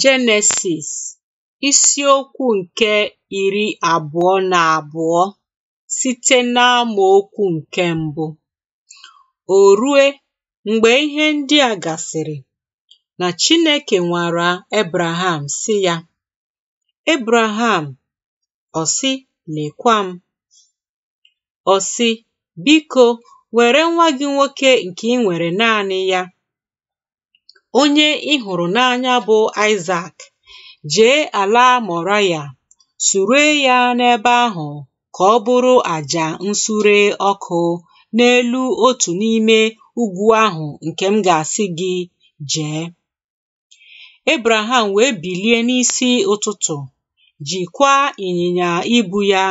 Jenesis isiokwu nke iri abụọ na abụọ site n'amòokwū nke mbụ O rue mgbe ihe ndị a gasịrị na Chineke nwara Abraham sị ya, Abraham ọ sị Lèkwa m, Ọ sị biko were nwa gị nwoke nke ị nwere naanị ya onye ị hụrụ n'anya bụ Aịzak jee ala moraya sure ya n'ebe ahụ ka ọ bụrụ àjà nsure ọkụ n'elu otu n'ime ugwu ahụ nke m ga-asị gị jee Abraham wee bilie n'isi ụtụtụ jikwa ịnyịnya ibu ya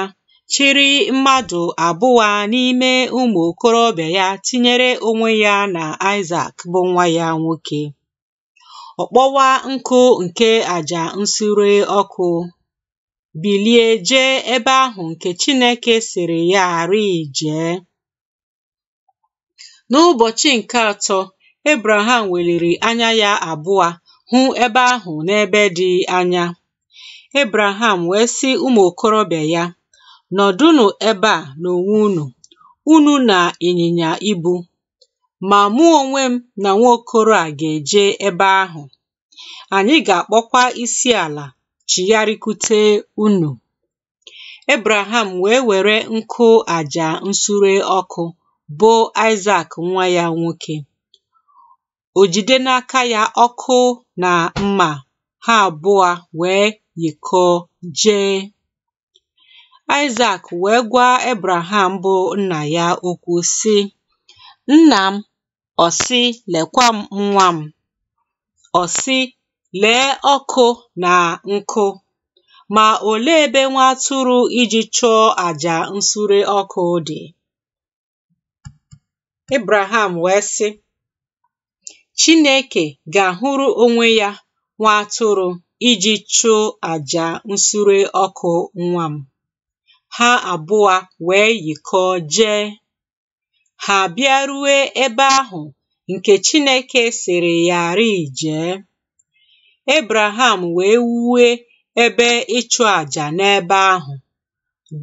chiri mmadụ abụwa n'ime ụmụ okorobịa ya tinyere onwe ya na Isaac bụ nwa ya nwoke ọkpọwa nkụ nke àjà nsure ọkụ, bilie jee ebe ahụ nke Chineke sịrị ya rịị jee. N'ụbọchị nke atọ Abraham, weliri anya ya abụọ hụ ebe ahụ n'ebe dị anya Abraham wee sị ụmụ okorobịa ya "Nọdụnụ ebe a unu unu, unu na ịnyịnya ibu!" Ma mụ onwe m na nwaokoro a ga-eje ebe ahụ. Anyị ga-akpọkwa isi ala chigharịkwute unu. Ebraham wee were nkụ aja nsure ọkụ bụ Aịzak nwa ya nwoke. O jide n'aka ya ọkụ na mma ha abụọ wee yikọọ jee. Aịzak wee gwa Ebraham bụ nna ya okwu sị, Nna m ọ sị lekwa m nwa m, ọ sị lee ọkụ na nkụ ma olee ebe nwa atụrụ iji chụọ àjà nsure ọkụ dị? Ibrahim wee sị Chineke ga-ahụrụ onwe ya nwa atụrụ iji chụọ àjà nsure ọkụ nwa m. Ha abụọ wee yikọọ jee ha abịaruwe ebe ahụ nke Chineke sịrị yarị jee. Ebraham wee wuwe ebe ịchụ àjà n'ebe ahụ,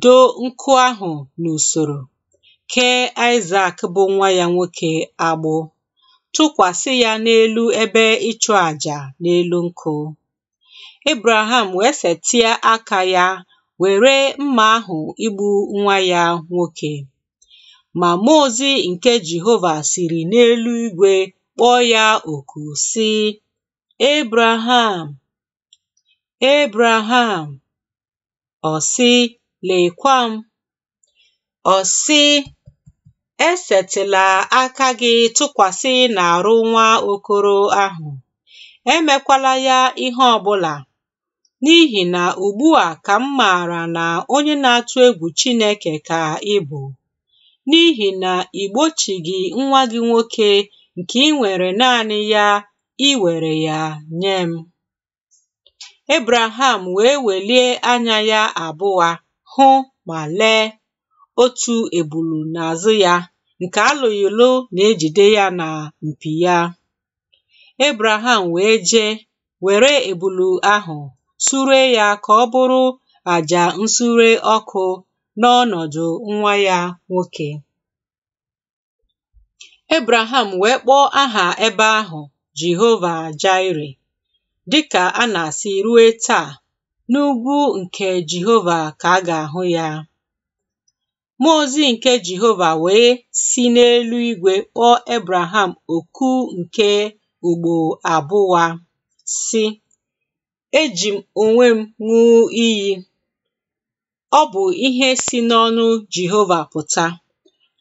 doo nkụ ahụ n'usoro, kee Isaac bụ nwa ya nwoke agbụ, tụkwasị ya n'elu ebe ịchụ àjà n'elu nkụ. Ebraham wee setịa aka ya were mma ahụ igbu nwa ya nwoke. Ma mmụọ ozi nke Jehova siri n'elu igwe kpọọ ya oku si ‘Ebraham, Ebraham! Ọ sị, Lekwa m! Ọ sị, aka gị tụkwasị n'arụ nwa okoro ahụ, emekwala ya ihe ọbụla, n'ihi na ugbu a ka m maara na onye na-atụ egwu Chineke ka ị bụ. N'ihi na nà ìgbochìgì nwa gị nwoke nke ị nwere naanị ya i ya nye m Ebreham wee welie anya ya abụọ hụ ma lee otu ebulu n'azụ ya nke alòghì na ejide ya na mpi ya Ebreham wee jee were ebulu ahụ sure ya ka ọ bụrụ àjà nsure ọkụ. n'ọnọdụ nwa ya nwoke. Ebreham wee kpọọ aha ebe ahụ Jehova Jaịre dịka a na-asị ruo taa n'ugwu nke Jehova ka a ga-ahụ ya. Mmụọ ozi nke Jehova wee si n'eluigwe kpọọ Ebreham oku nke ugbo abụwa si, eji m onwe m ṅụọ iyi ọ bụ ihe si n'ọnụ jehova pụta,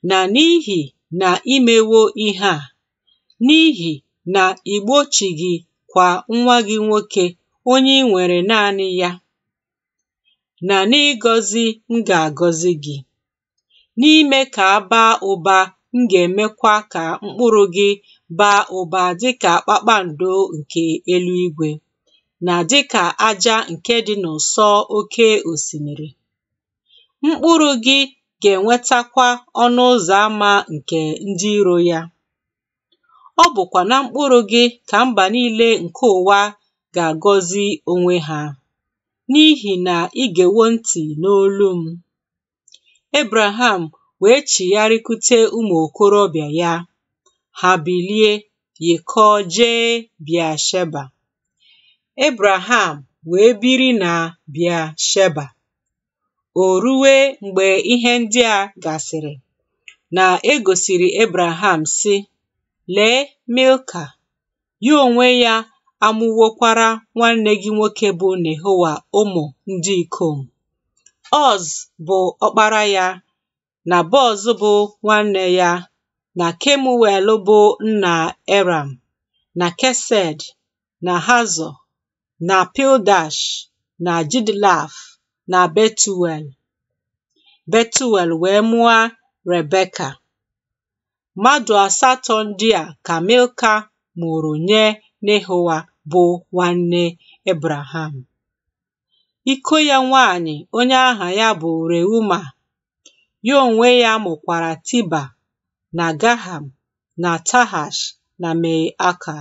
na n'ihi na imewo ihe a, n'ihi na ì gị kwa nwa gị nwoke onye ị nwere naanị ya na n'ịgọzi m ga agọzi gị n'ime ka a baa ụba m ga-emekwa ka mkpụrụ gị baa ụba dịka kpakpando nke eluigwe na dịka aja nke dị n'ụsọ oke osimiri. Mkpụrụ gị ga-enwetakwa ọnụ ụzọ ámá nke ndị iro ya ọ bụkwa na mkpụrụ gị ka mba niile nke ụwa ga-agọzi onwe ha. N'ihi na ị ntị ntị n'olu m. ebraham wee chigharịkute ụmụ okorobịa ya ha bilie, yikọọ jee Sheba. ebraham wee biri na Bịa Sheba. O ruwe mgbe ihe ndị a gasịrị, na e gosiri ebraham sị lee Milka ya onwe ya amụwokwara nwanne gị nwoke bụ Nehowa ụmụ ndị ikom Oz bụ ọkpara ya na Bọz bụ nwanne ya na Kemuel bụ nna Eram na Kesed na Hazọ na Pildash na Jidlaf Na Betuel Betuel wee mụọ Rebeka mmadụ asatọ ndị a ka Milka mụụrụ nye Nehoa bụ nwanne Ebreham iko ya nwanyị onye aha ya bụ Reuma ya onwe ya mụkwara Tiba na Gaham na Tahash na Me Aka